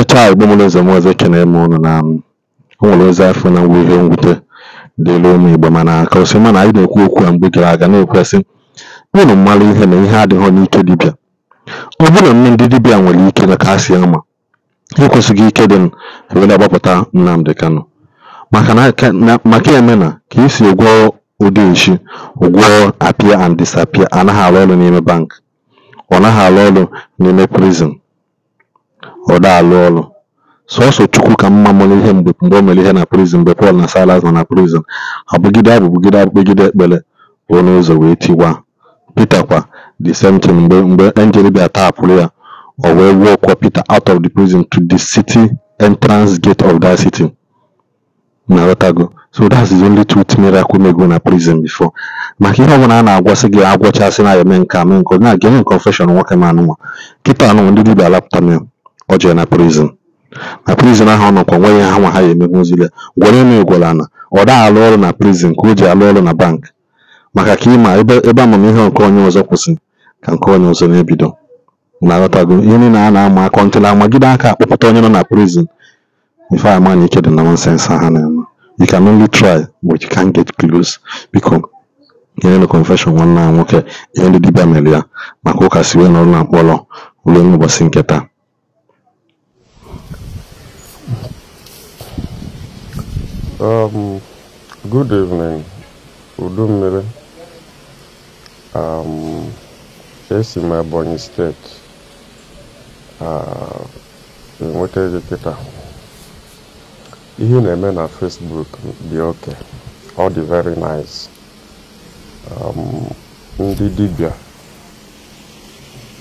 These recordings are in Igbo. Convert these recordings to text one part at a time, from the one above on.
Ọchịcha igbomunuzom ọzọ ekeneghi m unu na o nwere ozi afọ na mwube mwute dịịrị ụmụ Igbo mana ka o si na anyị na-ekwu okwu a mgbe gara aga na-ekwu sị, "unu mmalụ ihe na ihe adịghị n'ike dibịa" ọ bụ nne ndị dibịa nwere ike kasị ama, ha ekwesịghị ike dị were gbapụta nnamdị Kanu maka ya mena ka esi ụdị echi ụgwọ apịa and disapịa anaghị arụ ọrụ n'ime banki, ọ naghị arụ ọrụ n'ime prizin ụdọ alụ ọrụ. Sọọsọ Chukwu ka mma mara ihe mgbe o mere ihe na prizin mgbe Pọl na Salas nọ na prizin, abụgide bugide abụ bugide ekpere ruo n'ụzọ wee tiwa Pita kwa the same thing mgbe enjel bịara tapụrụ ya, o wee kwa Pita out of the prison to the city entrance gate of that city. Ịghọtago? So that's the only truth miracle mego na prison before. Maka ihe ọbụla a na-agwasị gị agwọchasị na ya eme nke a mee nke ọ na-aga confession nwoke ma anụnwa. Kịta anụnwa ndị dibịa alapụta mee Ọ jere na prizin na prịzịn ahụ ọ nọkwa nwe ya ha nwa ha ya emegbu emegonzụ ya. Gwaranụ ya ugwuọlana ọ daghi alụ ọrụ na prizin ka o ji arụ ọrụ na bank maka ka ịma ebe amamihe nke onye ọzọ kwụsị ka nke onye ọzọ na-ebido. Ịghọtago? Ihe niile a na ama akọ ntụla amagide aka akpọpụta onye nọ na prizin ife a ama na ike dị na nọnsensị ha na-eme. You can only try but you can't get close. Biko nyenụ confession nwanne anyị nwoke ihe ndị dibịa mere ya maka ụka si wee na mkpọrọ ruo n'ụbọchị nke taa Um, good evening, Udummiri. Um, esi m Ebonyi steeti enweta gị kịta ihe na-eme na Facebook dị oke ọ dị very nice um, ndị dibia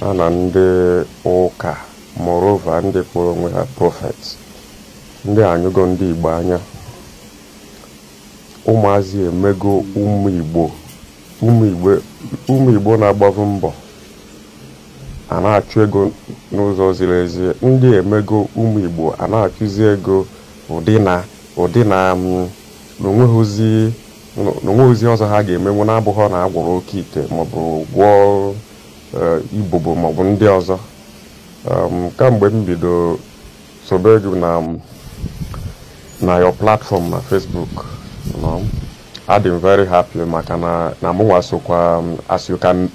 ha na ndị ụka morova ndị kpọrọ onwe ha prọfet ndị anyụgo ndị Igbo anya ụmụazị emego ụmụ igbo na agbavu mbọ a na-achụ ego n'ụzọ ziri ezi ndị emego ụmụ igbo a na-achụzi ego ụdị na ụdị na n'onweghịzi ọzọ ha ga-emenwu na-abụghị na-agwọrọ oke ite maọbụ gwọọ eh, ibobo maọbụ ndị ọzọ um, kamgbe m bido sobe na platform na Facebook adị m very happy maka na mụnwa sokwa um, uh, as you can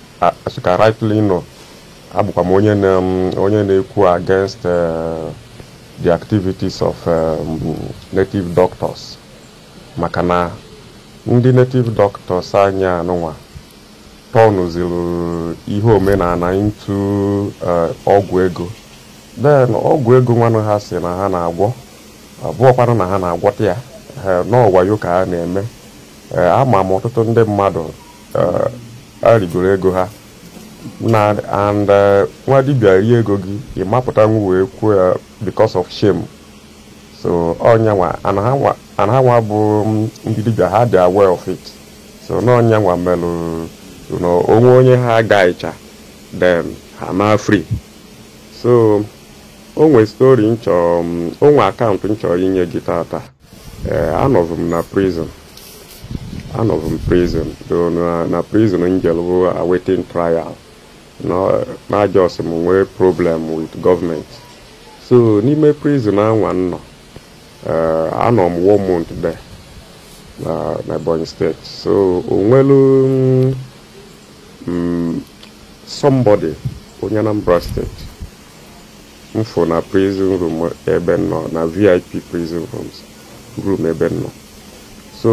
rightly know abụkwa m um, onye na-ekwu against uh, the activities of um, native doctors maka na ndị native doctors anya nwa tọnụziri ihe omenala ntụ uh, ọgwụ ego then ọgwụ ego nwanne ha si na ha na-agwọ abụọkwanụ na ha na-agwọta ya Eh, n'ọwayo ka a na-eme eh, ama m ọtụtụ ndị mmadụ eh, arigoro ego ha na and nwa dibịa rie ego gị ị mapụta wee kwuo ya because of shame so nwa ana ha nwa bụ mm, ndị dibia ha dị aware of it so n'ọnyanwa melụ onwe onye ha ga-echa then ha na afrị so onwe stori nchọ mm, onwe akaụntụ nchọ inye gị tata ee eh, anọbụ m na prison anọbụ m prison na prison njelbụ awaiting trial na just m nwee problem with government so n'ime prison anwa nọ eh, anọ m one month na Ebonyi steeti so onwelu mm, somebody onye Anambra steeti mfụ na prison room ebe nọ na vip prison rooms room ebe m nọ so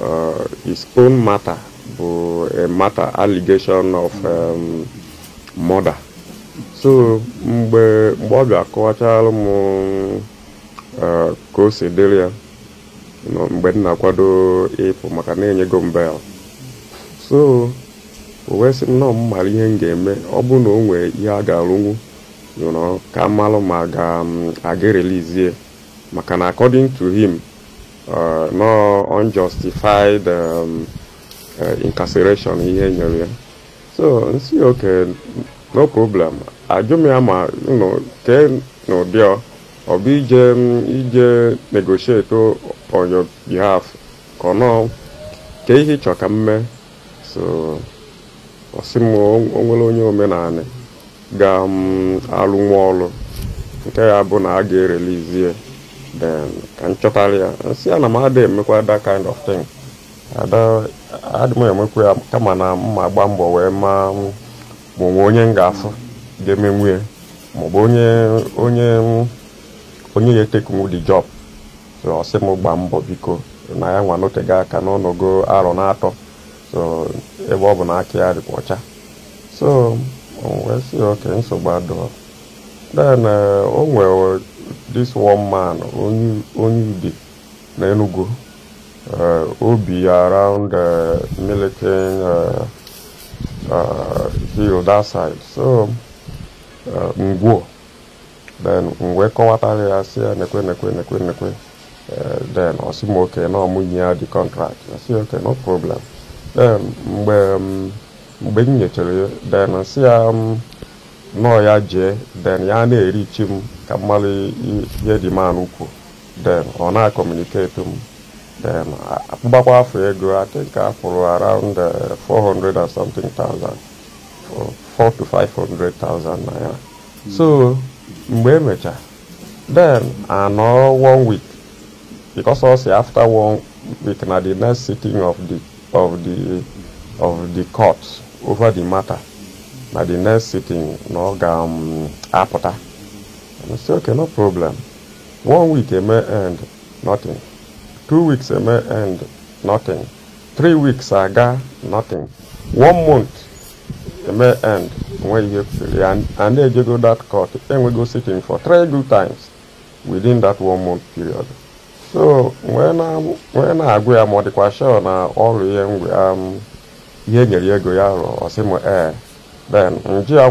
uh, his own matter bụ a eh, matter allegation of um, murder so mgbe mgbe ọ bịa kọwachalụ m uh, ka o si dịrị ya mgbe m na-akwado ịpụ maka na-enyego m bel so o wee sị nnọọ m mara ihe m ga-eme ọ bụrụ na o ihe a ga-arụnwu you know ka mmalụ ma ga-aga um, relizie maka na according to him Uh, no unjustified um, uh, incarceration ihe nyere ya so nsi oke no problem ajụ m ya ma kee n'ụdị ọ bụ ije um, ije negotiate on your behalf ka ọ kee ihe ịchọ ka m so ọsị m onwere onye omenanị ga-alụ um, nwa ọrụ nke ya bụ na a ga then ka nchọtara ya nsị a na m ada emekwa that kind of thing adịm emekwa ya kama na mma gba mbọ wee ma ma onye m ga-afụ ga-eme nwunye maọbụ onye onye onye ya etekunwu job so ọ sị m gba mbọ biko na ya nwa n'ote ga aka n'ọnọgụ arọ na-atọ so ebe ọ bụ na aka ya dịkwa ọcha so uh, oh, wee nsogbu this one man onye Ude na Enugu obi uh, around uh, Milliken uh, hill that side so ngwo then mgbe kọwatara ya si ya nekwe nekwe nekwe nekwe then ọ sị m oke na ọmụnye ya contract ya sị oke no problem then mgbe m nyechara ya then si ya nọọ ya jee den ya na-erichi m ka mmalụ ihe dị man kwu den ọ na-akọmuniketi m den akpụbakwa afọ ego I think afụrụ around 400 uh, and something thousand 4 to 500,000 naira so mgbe emecha then anọ one week because ọ si after one week na the next sitting of the of the of the court over the matter na the next sitting na ọ ga-apụta m si okay no problem one week eme end nothing two weeks eme end nothing three weeks aga nothing one month eme end nwe ihe kwesịrị and a na-ejego that court enwego sitting for three good times within that one month period so nwee na-agụ ya ma ọ dịkwa shọ na ọrụ ihe nyere ego ya rụọ ọsị m ee then nji ya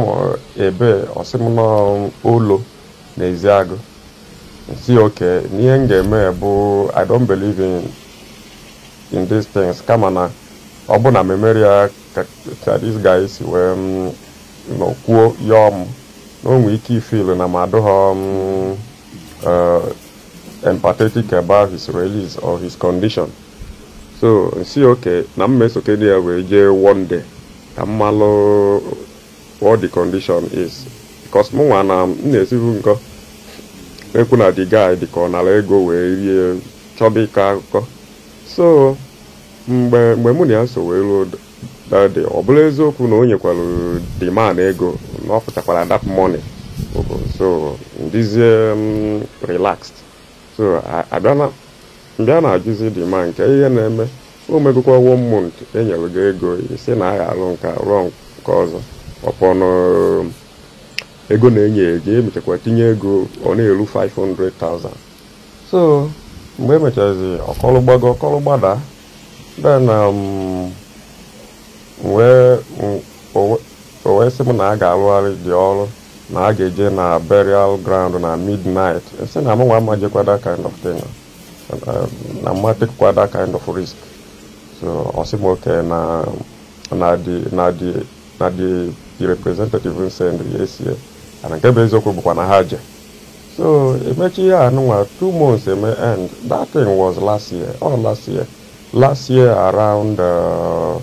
ebe ọsịmụnọ ụlọ n'ezi agụ si oke n'ihe m ga-eme bụ i don't believe in in these things kama na ọ bụ na memory ka this guy si wee mm, kwuo yọọ m na ike ifil na ma adụghọ mm, eh, empathetic about his release or his condition so nsi oke na m mesokedi ya wee jee one day ka mmalụ what the condition is because mụnwa na m na-esibu nkọ ekwu na the guy dị ka ọ nara ego wee rie chọba ịkọ akụkọ so mgbe mgbe mụ na ya so wee ruo dade ọ bụla eziokwu na o nyekwara the ego na ọ pụtakwara that money so ndizie relaxed so mbịa na-ajụzi the nke ihe na-eme o megokwa one month enyere gị ego isi na agha alụ nke rụọ nke ọzọ ọkpọnụ ego na-enye ego emechakwa tinye ego ọ na-eru 500,000 so mgbe emechazi ọkọlụ gbago ọkọlụ gbada then um, o wee sị m na a ga-alụgharị dị ọrụ na a ga-eje na burial ground na midnight e sị na mụnwa that kind of thing na that kind of risk so ọ sị m oke na na dị na the the representative sendri esi ana nke bụ eziokwu bụkwa na ha je so emechi ya anụnwa two months eme end that thing was last year or last year last year around uh,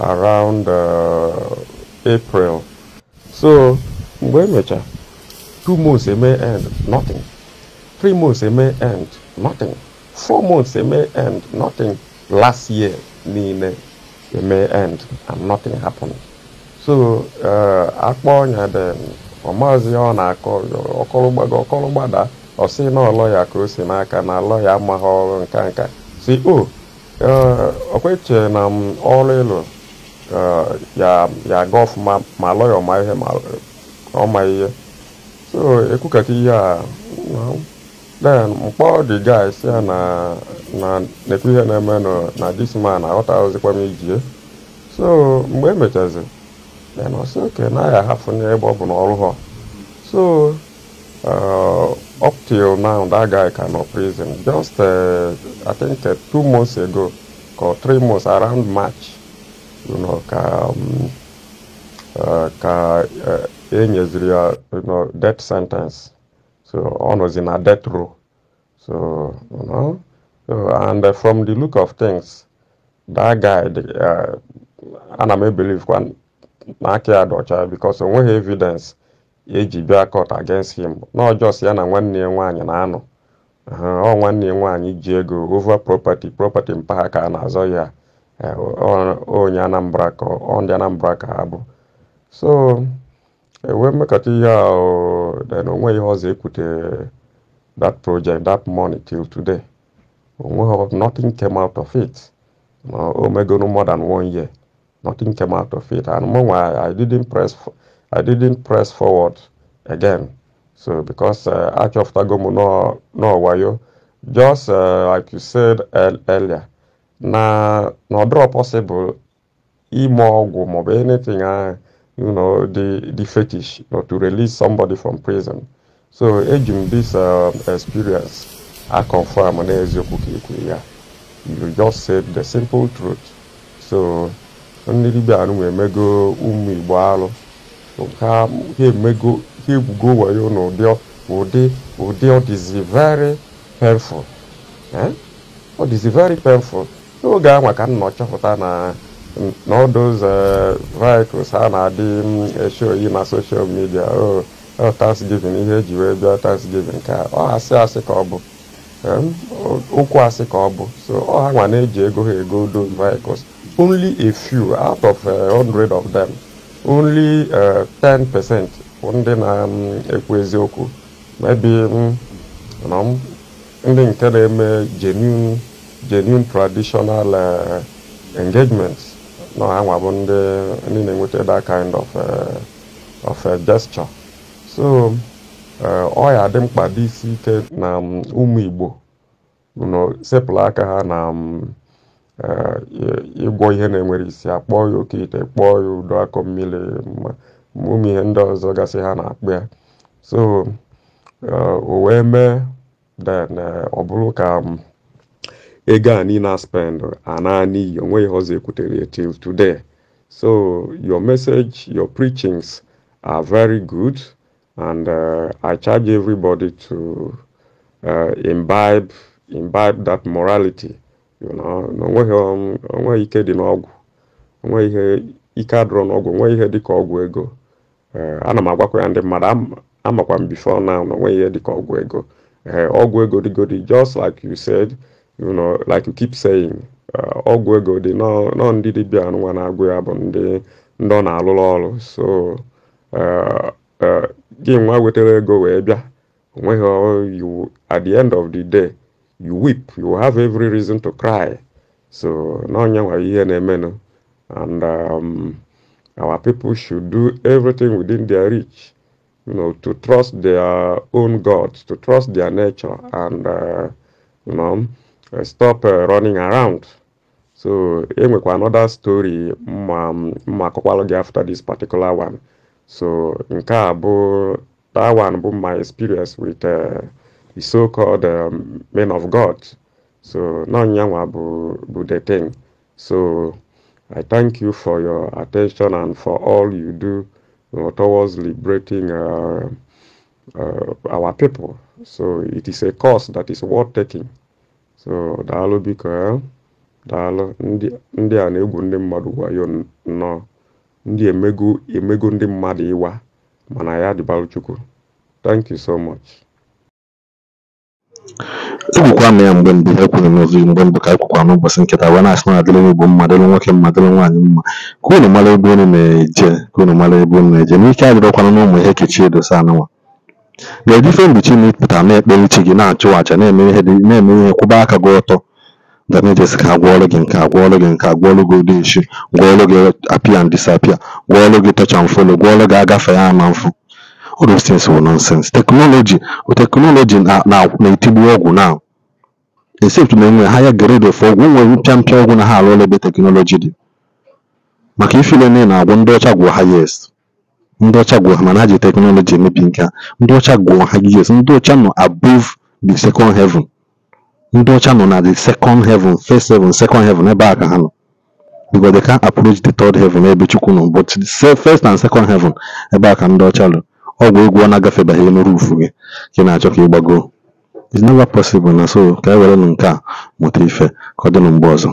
around uh, april so mgbe emecha two months eme end nothing three months eme end nothing four months eme end nothing last year niile eme end and nothing happened so e, akpọ ọnya dị ọmazi ọ na-akọ ọkọlụgbago ọkọlụgbada ọ sị na ọlọ ya ka o si n'aka na alọ ya amaghị ọrụ nka nka si o okweche e, na m ọrụ ịlụ e, ya aga ọfụma ma alọ ọma ihe ma ọma ihe so ekwukata ihe a then mkpọ dị guys ya na na-ekwu ihe na-eme na this man aghọtaghịzikwa m ijie so mgbe emechazi then I said, okay, now I have n'ebe ọ bụ all of ha so uh, up till now that guy can no prison just uh, i think uh, two months ago or three months around march you know, ka um, uh, ka uh, e you know, death sentence so was in a death row so you know, so, and uh, from the look of things that guy the, uh, may believe one. na aka ya dị ọcha because eji e bịa court against him n'ọjọs ya na nwanne ya nwaanyị na-anọ ọ nwanne ya nwaanyị ji ego ova propati property mpaghara a na-azọ ya eh, onye Anambra ka ndị Anambra ka ha bụ so ewee mmekọta ihe a then onwe ihe ọzọ ekwute that project that money till today onweghị nothing came out of it o megoro more than one year Nothing came out of it. And meanwhile, I didn't press, I didn't press forward again. So because uh, Arch of Tagomu no, no wayo, just uh, like you said earlier, na no draw possible, imogum or anything, uh, you know, the, the fetish, you know, to release somebody from prison. So aging this uh, experience, I confirm and Ezio Kukiku, You just said the simple truth. So ndị be anụ emego ụmụ igbo alụ ha ha egwugo wayo n'ụdị ụdị ụdị ọ dịzi very painful eh? ọ dịzi very n'oge ahụ ka m nọ chọpụta na n'ọdụz vehicles a na-adị eshi oyi na soshal midia o thanksgiving ihe eji wee bịa thanksgiving ka ọ asị asị ka ọ bụ eh? okwu asị ka ọ bụ so ọ ha nwa na-eji ego ha ego those vehicles only a few out of uh, 100 of them, only 10% uh, ndị na-ekwu um, eziokwu maybe um, ndị nke na-eme genuine traditional uh, engagements na anwa bụ ndị na-enweta that kind of uh, of gesture so ọ ya dị mkpa dị ike na um, ụmụ Igbo sepụlụ aka ha na Eh, igwo ihe na-enwere isi akpọọ ya oke ite kpọọ ya udo akọ mmiri ụmụ ihe ndị ọzọ gasị ha na-akpụ ya so eh, o wee mee then eh, ọ bụrụ ka mm, ego a niile spend ana n'iyi onweghị ọzọ ekwutere till today so your message your preachings are very good and uh, I charge everybody to uh, imbibe imbibe that morality na um, onweghị ike dị n'ọgwụ onweghị ihe ike adụrụ n'ọgwụ onweghị ihe dịka ọgwụ ego eh, ana m agwakwa ya ndị mmadụ amakwa m bifo na na onweghị ihe dịka ọgwụ ego eh, ọgwụ ego dịgodi just like you said you know like you keep saying eh, ọgwụ ego dị nọ ndị dibịa nwa na-agwụ ya bụ ndị ndị ọ na-alụrụ ọrụ so gị nwa wetara ego wee bịa onweghị iwu oh, at the end of the day you weep, you have every reason to cry. So Nonya Wayenemeno, and um, our people should do everything within their reach, you know, to trust their own gods, to trust their nature, and uh, you know, uh, stop uh, running around. So enwekwa another story ma akọkwalụ gị after this particular one. So nke a bụ that one bụ my experience with. Uh, the so-called um, men of God. So now Nyanwa bu the thing. So I thank you for your attention and for all you do you know, towards liberating uh, uh, our people. So it is a cause that is worth taking. So daalụ biko eh, daalụ ndị a na-egwu ndị mmadụ wayo nnọọ ndị emego emego ndị mmadụ ịwa thank you so much. Egwukwa m ya mgbe mbụ ya ekwughị m ozugbo mgbe mbụ ka ekwukwa n'ụbọchị nkịta wee na-asị na ọ dịrị mma dịrị nwoke mma dịrị nwaanyị mma ka unu mara ebe unu na-eje ka unu mara ebe unu na-eje na ike adịrọkwanụ n'ụmụ ihe Kechi Edosa anụnwa na-eji ifemgbochi ma ị na-ekpere chi gị na-achụ aja na-eme ihe kwụba aka gị ọtọ damages ka a gwọọrọ gị nke a gwọọrọ gị nke a gwọọrọ gị ụdị ishi gwọọrọ gị apịa and disapịa gwọọrọ gị tọcha and follow gwọọrọ gị ya ama mfụ All those things wụ nonsense. Teknọlọji teknọlọji na-etigbu ọgwụ now except na enwere higher grade of ọgwụ. O nwere mpia mpia ọgwụ na ha arụọla ebe teknọlọji di. maka ife ile na agwọ ndị ọcha gwụ ha yes ndị ọcha gwụ ha mana ha ji teknọlọji emebi nke a. ndị ọcha gwụ ha yes ndị ọcha nọ above the second heaven ndị ọcha nọ na the second heaven first heaven second heaven ebe a ka ha nọ because they can't approach the third heaven ebe Chukwu nọ but the first and second heaven ebe a ka ndị ọcha nọ ọgwụ egwu ọ na-agafebeghị elu gị ka ị na-achọ ka ị gbagoo is never possible na so ka e were nụ nke a mụta ife ka ọ dị mgbe ọzọ